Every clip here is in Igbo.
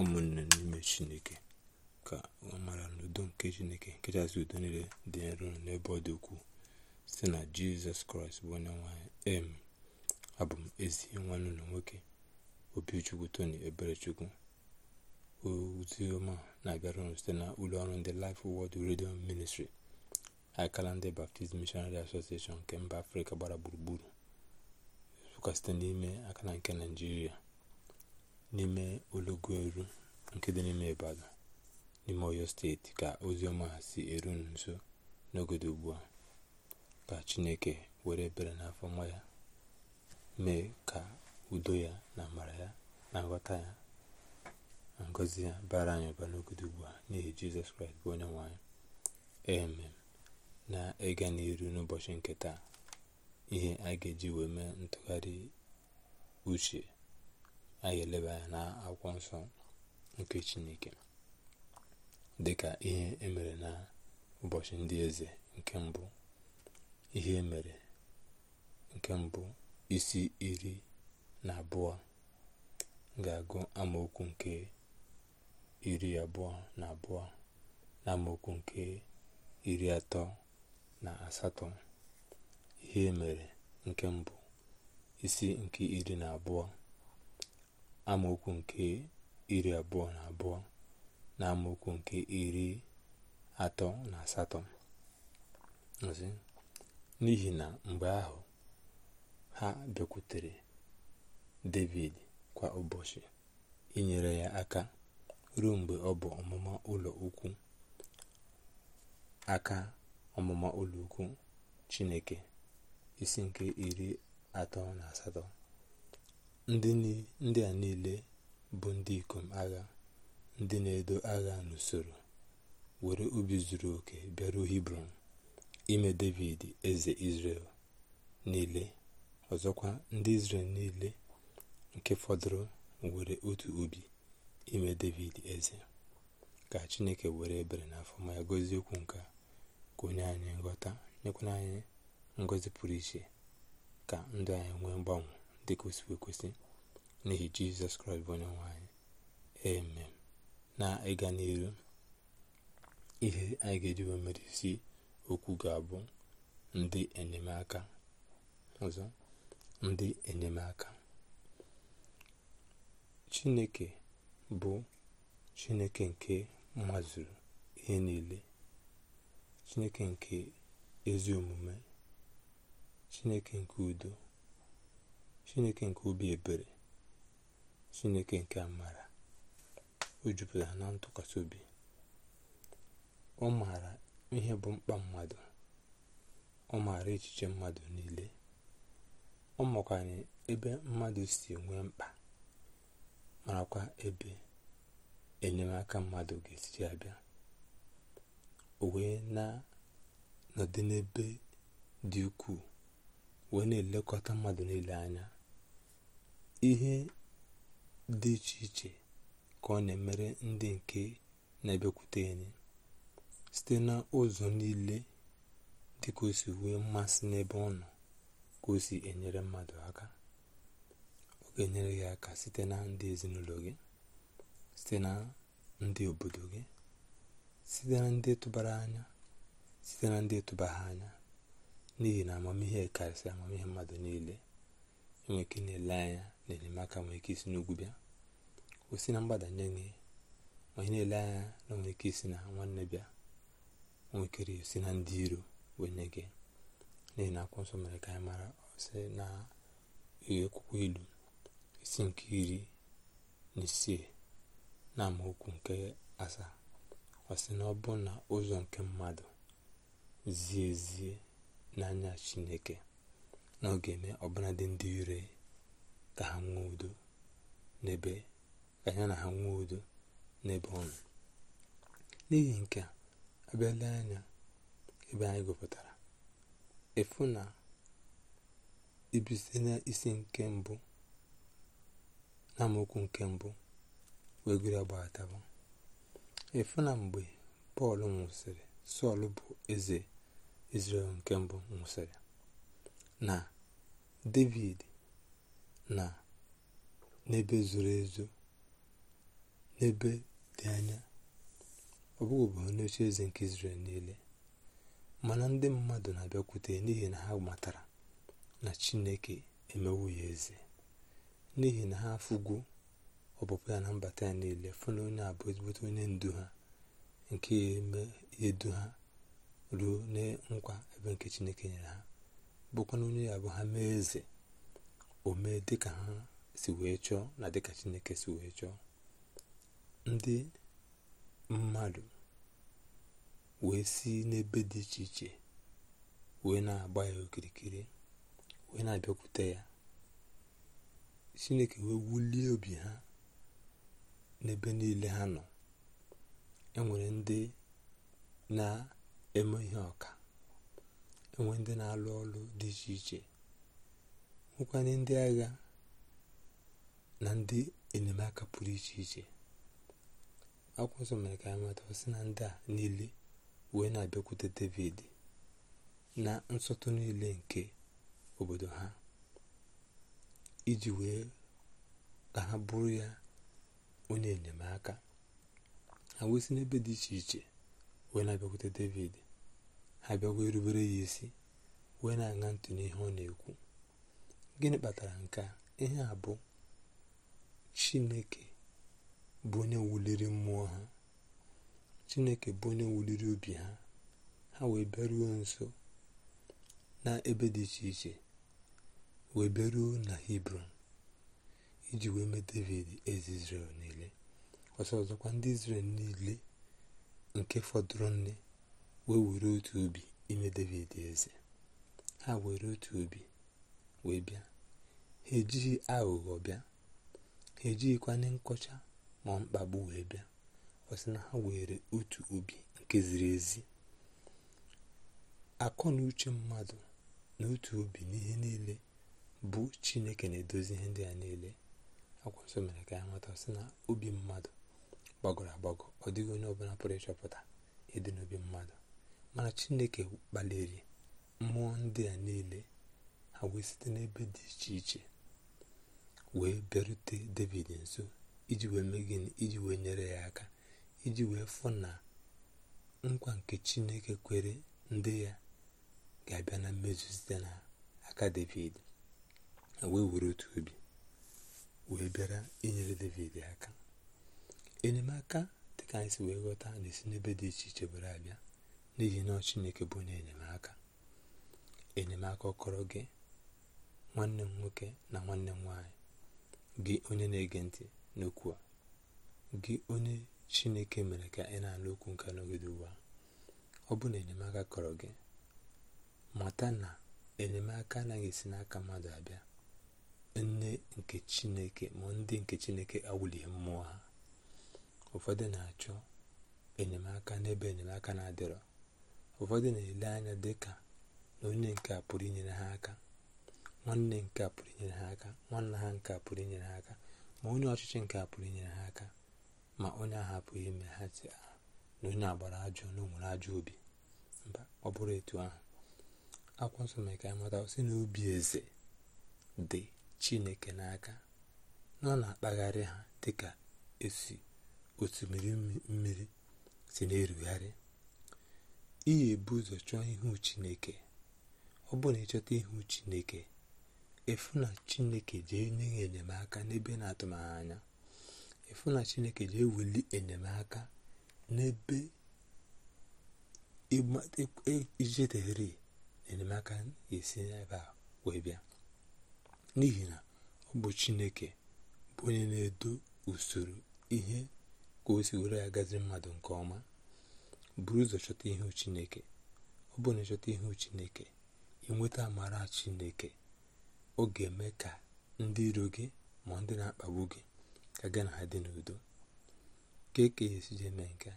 ụmụnne n'ime chineke ka ọ mara n'udo nke chineke nkechasị udo niile dị nro n'ebe ọ dị ukwuu site na jizọs kraịst bụ onye nwanyị em abụ m ezi nwanne ụlọ nwoke obichukwu tony eberechukwu ozi ọma na-abịara unu site na ụlọ ọrụ ndị Life Word redio ministri akala ndị Baptist Missionary Association nke mba afrịka gbara gburugburu nsụka site n'ime akala nke naijiria n'ime ologo eru nke dị n'ime Ibadan n'ime Oyo steeti ka ozi ọma si eru nso n'ogodo ugbu a ka Chineke were ebere n'afọ nwa ya mee ka udo ya na amara ya na nghọta ya na ngozi ya bara anyị ụba n'ogodo ugbu a n'ihi Jizọs Kraịst bụ onye nwanyị anyị na ega n'iru n'ụbọchị nke taa ihe a ga-eji wee mee ntụgharị uche a ga-eleba anya na akwụkwọ nsọ nke chineke dịka ihe emere na ụbọchị ndị eze nke mbụ ihe e mere nke mbụ isi iri na abụọ ga-agụ amaokwu nke iri abụọ na abụọ na amaokwu nke iri atọ na asatọ ihe emere nke mbụ isi nke iri na abụọ amaokwu nke iri abụọ na abụọ na amaokwu nke iri atọ na asatọ n'ihi na mgbe ahụ ha bekwutere David kwa ụbọchị inyere ya aka ruo mgbe ọ bụ ọmụma ụlọ ukwu aka ọmụma ụlọ ukwu Chineke isi nke iri atọ na asatọ ndị a niile bụ ndị ikom agha ndị na-edo agha n'usoro were ubi zuru oke bịaruo hibron ime david eze israel niile ọzọkwa ndị israel niile nke fọdụrụ were otu ubi ime david eze ka chineke were ebere n'afọ ma ya gozie okwu nke ka onye anyị nghọta nyekwana anyị ngọzi pụrụ iche ka ndụ anyị nwee mgbanwe dịka n'ihi jizọs kraịst bụ onye nwanyị eme na ịga n'iru ihe anyị ga-eji wee isi okwu ga-abụ ndị enyemaka ọzọ ndị enyemaka chineke bụ chineke nke mazuru ihe niile chineke nke ezi omume chineke nke udo chineke nke obi ebere chineke nke amara o jupụtara na ntụkwasị obi ọ maara ihe bụ mkpa mmadụ ọ maara echiche mmadụ niile ọ makwanye ebe mmadụ si nwee mkpa marakwa ebe enyemaka mmadụ ga esi abịa o wee na-anọdị n'ebe dị ukwuu wee na-elekọta mmadụ niile anya ihe dị iche iche ka ọ na-emere ndị nke na ebekwute anyị site n'ụzọ niile dịka o si wee mmasị n'ebe ọ nọ ka o si enyere mmadụ aka ọ ga-enyere gị aka site na ndị ezinụlọ gị site na ndị obodo gị site na ndị tụbara anya site na ndị tụbara anya n'ihi na amamihe karịsịa amamihe mmadụ niile onwe ike na-ele anya na enyemaka nwere ike isi n'ugwu bịa o si na mgbadanye nye onye na-ele anya na onwere ike isi na nwanne bịa nwekere si na ndị iro wee nye gị n'ihi na akwụkwọ nsọ mere ka anyị mara ọsị na akwụkwọ ilu isi nke iri na isii na amaokwu nke asaa ọsị na ọ bụ na ụzọ nke mmadụ zie ezie n'anya chineke na ọ ga-eme ọbụnadị ndị ire ka ha nwee udo n'ebe ka anya na ha nwee udo n'ebe ọnụ n'ihi nke a abịala anya ebe anyị gụpụtara efu na ibisi n'isi nke mbụ na amaokwu nke mbụ wee gụrụ agbaghatawa efu na mgbe pọl nwụsịrị sọl bụ eze izrel nke mbụ nwụsịrị na david na n'ebe zoro ezo n'ebe dị anya ọ bụghị obodo n'oche eze nke israel niile mana ndị mmadụ na-abịakwute n'ihi na ha matara na chineke emewu ya eze n'ihi na ha afụgo ọpụpụ ya na mbata ya niile fụ na onye abụọ ezigbote onye ndu ha nke edu ha ruo na nkwa ebe nke chineke nyere ha bụkwa onye ya bụ ha mee eze o mee dịka ha si wee chọọ na dịka chineke si wee chọọ ndị mmadụ wee si n'ebe dị iche iche wee na-agba ya okirikiri wee na-abịakwute ya chineke wee wulie obi ha n'ebe niile ha nọ enwere ndị na-eme ihe ọka enwe ndị na-alụ ọlụ dị iche iche nwekwanye ndị agha na ndị enyemaka pụrụ iche iche akwụkwọ nsọ mere ka anyị na ndị a niile wee na-abịakwute david na nsọtụ niile nke obodo ha iji wee ka ha bụrụ ya onye enyemaka ha wee si n'ebe dị iche iche wee na-abịakwute david ha erubere ya isi wee na-aṅa ntị n'ihe ọ na-ekwu gịnị kpatara nke a ihe a bụ chineke bụ onye wuliri mmụọ ha chineke bụ onye wuliri obi ha ha wee bịaruo nso na ebe dị iche iche wee bịaruo na hibron iji wee mee david eze israel niile ọsọ ọzọkwa ndị izrel niile nke fọdụrụ nne wee were otu obi ime david eze ha were otu obi wee bịa ha ejighị aghụghọ bịa ha ejighịkwanye nkọcha ma mkpagbu wee bịa ọ sị na ha were otu obi nke ziri ezi akọ na uche mmadụ na otu obi n'ihe niile bụ chineke na-edozi ihe ndị a niile akwa nsọ mere ka ya nweta sị na obi mmadụ gbagọrọ agbagọ ọ dịghị onye ọbụla pụrụ ịchọpụta ịdị n'obi mmadụ mana chineke kpaliri mmụọ ndị a niile ha wee site n'ebe dị iche iche wee bịarute david nso iji wee mee gịnị iji wee nyere ya aka iji wee fụ na nkwa nke chineke kwere ndị ya ga-abịa na mmezu site n'aka david wee were otu obi wee bịara inyere david aka enyemaka dị ka anyị si wee ghọta na-esi n'ebe dị iche iche were abịa n'ihi na chineke bụ onye enyemaka enyemaka ọkọrọ gị nwanne m nwoke na nwanne m nwanyị gị onye na-ege ntị n'okwu a gị onye chineke mere ka ị na-alụ okwu nke n'ogede ụwa ọ bụ na enyemaka kọrọ gị mata na enyemaka anaghị esi n'aka mmadụ abịa nne nke chineke ma ndị nke chineke awụlighị mmụọ ha ụfọdụ na-achọ enyemaka n'ebe enyemaka na-adịrọ ụfọdụ na-ele anya dị ka na onye nke a pụrụ inyere ha aka nwanne nke a pụrụ inyere ha aka nwanna ha nke a pụrụ inyere ha aka ma onye ọchịchị nke a pụrụ inyere ha aka ma onye ahapụghị ime ha si ah, na onye agbara ajọ na onwere ajọ obi mba ọ bụrụ etu ahụ akwụkwọ nsọ ka anyị mata sị na obi eze dị chineke n'aka na ọ na-akpagharị ha dịka esi osimiri mmiri si na-erugharị iyi ebu ụzọ chọọ ihu chineke ọ bụrụ na ịchọta ihu chineke efu na chineke jee nye ya enyemaka n'ebe na-atụmaghị anya efu na chineke jee weli enyemaka n'ebe ijeteghere enyemaka esi n'ebe a wee bịa n'ihi na ọ bụ chineke bụ onye na-edo usoro ihe ka o si were ya gazi mmadụ nke ọma buru ụzọ chọta ihu chineke ọ bụrụ na ịchọta ihu chineke inweta amara chineke ọ ga-eme ka ndị iro gị ma ndị na-akpagbu gị ka gị na ha dị n'udo ka eke ya esi je eme nke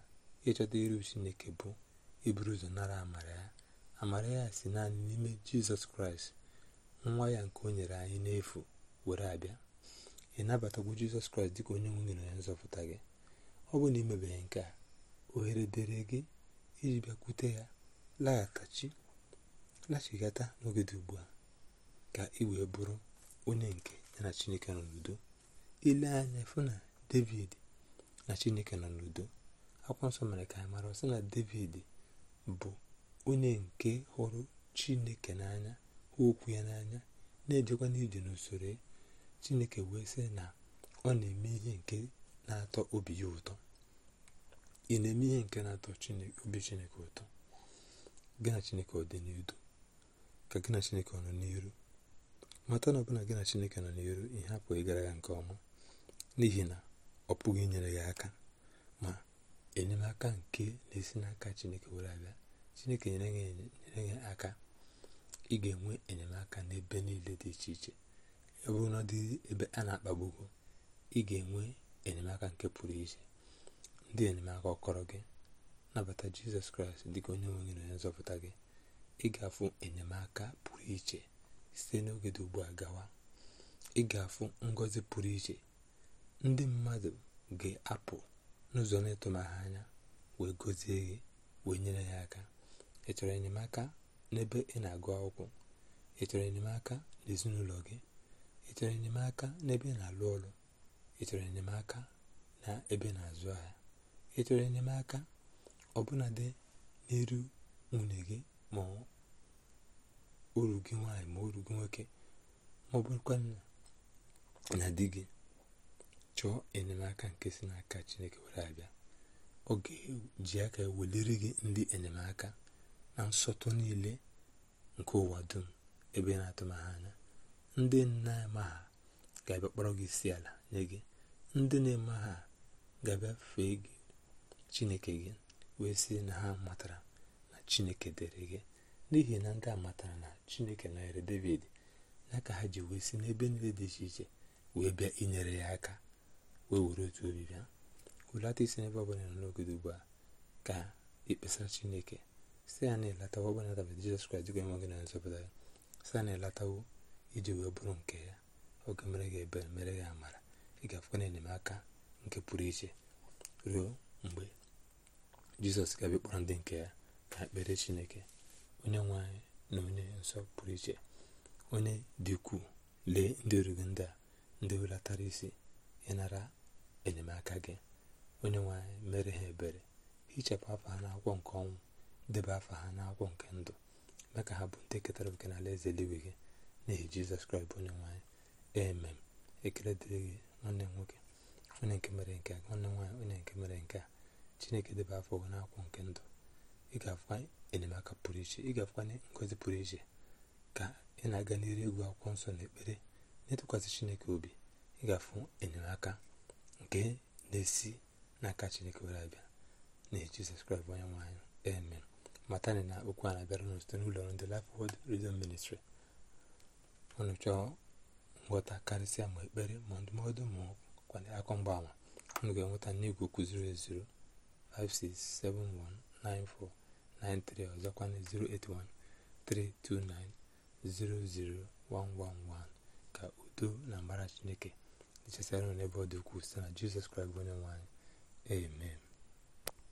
ịchọta iru chineke bụ iburu ụzọ nara amara ya amara ya si naanị n'ime jizọs kraịst nwa ya nke o nyere anyị n'efu were abịa ị nabatagwu jizọs kraịst dịka onye nwunye na onye nzọpụta gị ọ bụ na imebeghị nke a oghere dere gị iji bịakwute ya laghachi gata n'ogede ugbu a ka ị wee bụrụ onye nke ya na chineke nọ n'udo ile anya fụ na david na chineke nọ n'udo akwụkwọ nsọ mere ka anyị mara na david bụ onye nke hụrụ chineke n'anya hụ okwu ya n'anya na-ejekwa n'ije n'usoro chineke wee sị na ọ na-eme ihe nke na-atọ obi ya ụtọ ị na-eme ihe nke na-atọ obi chineke ụtọ gị na chineke ọ dị n'udo ka gị na chineke ọ nọ n'iru mata na ọbụla gị na chineke nọ n'iru ihe apụghị gara ya nke ọma n'ihi na ọ pụghị inyere ya aka ma enyemaka nke na-esi n'aka chineke were abịa chineke nyere ya aka ị ga-enwe enyemaka n'ebe niile dị iche iche ọ bụrụ na ọ dị ebe a na-akpagbugo ị ga-enwe enyemaka nke pụrụ iche ndị enyemaka ọkọrọ gị nabata jizọs kraịst dịka onye nwe gị na onye nzọpụta gị ịgafu enyemaka pụrụ iche site n'oge dị ugbu a gawa ịgafu ngozi pụrụ iche ndị mmadụ ga-apụ n'ụzọ na-etụmaha anya wee gozie gị wee nyere ya aka ị chọrọ enyemaka n'ebe ị na-agụ akwụkwọ ị chọrọ enyemaka n'ezinụlọ gị ị chọrọ enyemaka n'ebe ị na-alụ ọrụ ị chọrọ enyemaka na ebe na-azụ ahịa ị chọrọ enyemaka ọbụnadị n'iru nwunye gị ma uru gị nwaanyị ma uru gị nwoke ma ọ bụrụkwa na di gị chọọ enyemaka nke si n'aka Chineke were abịa ọ ga-eji aka weliri gị ndị enyemaka na nsọtụ niile nke ụwa dum ebe na atụmanya anya ndị na-eme ha ga-abịa kpọrọ gị isi ala nye gị ndị na-eme ha ga-abịa fee gị chineke gị wee si na ha matara na chineke dere gị n'ihi na ndị a matara na chineke nọnyere david na ka ha ji wee si n'ebe niile dị iche iche wee bịa inyere ya aka wee were otu obi bịa hulata isi n'ebe ọbụla nọ n'ogodo ugbu a ka ikpesara chineke si ya na-elatawo ọbụla dabata jizọs kraịst dịka enweghị na nzọpụta ya si ya na-elatawo iji wee bụrụ nke ya oge mere gị ebere mere gị amara ị ga-afụkwa na enyemaka nke pụrụ iche ruo mgbe jizọs ga-abịa ndị nke ya ka ekpere chineke onye nwe na onye nsọ pụrụ iche onye dị ukwuu lee ndị orugị ndị a ndị welatara isi ịnara enyemaka gị onye nwanyị mere ha ebere hichapụ afọ ha n'akwụkwọ nke ọnwụ debe afọ ha n'akwụkwọ nke ndụ mee ka ha bụ ndị ketara oke n'ala eze eluigwe gị n'ihi jizọs kraịst bụ onye nwanyị anyị emem ekele dịrị gị nwanne nwoke onye nke mere nke nwanne m nwaanyị onye nke mere nke a chineke debe afọ gị n'akwụ nke ndụ ị ga-afụkwa enyemaka pụrụ iche ị ga-afụkwa ngozi pụrụ iche ka ị na-aga n'iru egwu akwụkwọ nsọ na ekpere na-etụkwasị chineke obi ị ga-afụ enyemaka nke na-esi n'aka chineke were abịa na jizọs kraịst onye nwe anyị amen matani na okwu a na-abịara unu site n'ụlọ ndị Life Word Radio Ministry ọnụ chọọ nghọta karịsịa ma ekpere ma ndụmọdụ ma kwanye akọ mgbaama unu ga-enweta n'igwe kụziri 0 56719493 ọzọkwana 08132900111 ka udo na mbara chineke nchesara n'ebe ọ dị ukwuu site na jizọs kraịst bụ onye amen